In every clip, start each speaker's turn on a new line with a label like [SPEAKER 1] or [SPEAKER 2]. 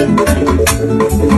[SPEAKER 1] Gracias.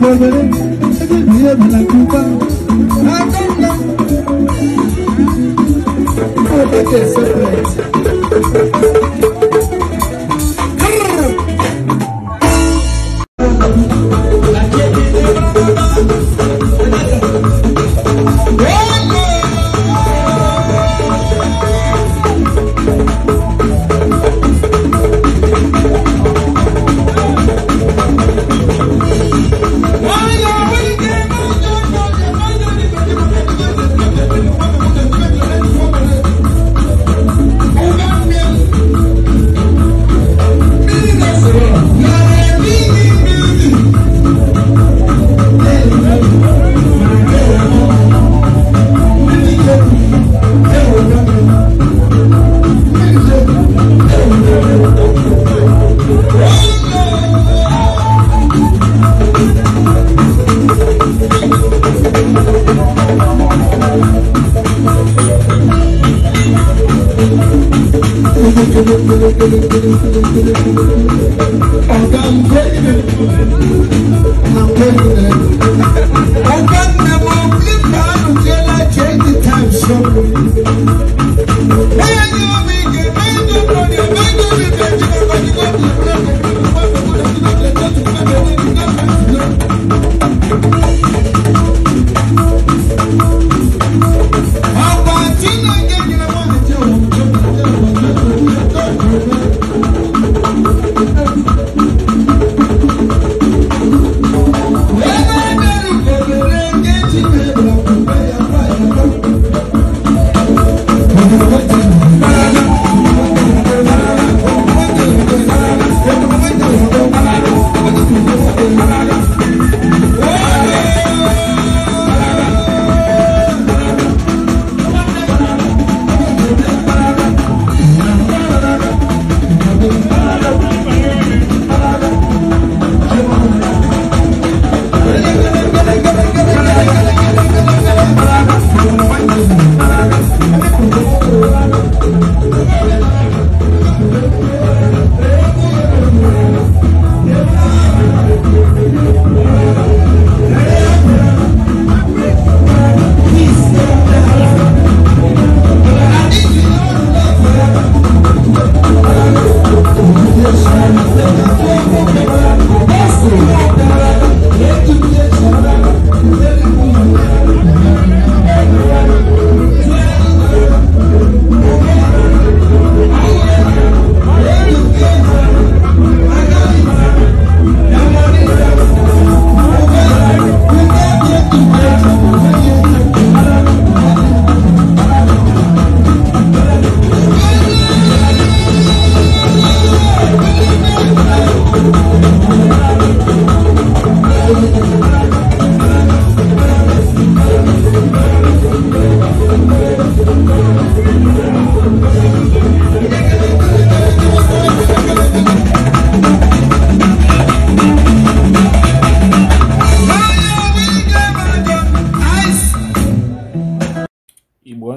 [SPEAKER 1] volveré el día de la culpa. Atenda. Porque te sorprende. Ọ̀gá ń gbé ìdè. Ọ̀gá ń gbé ìdè. Ọ̀gá ń gbé ìdè.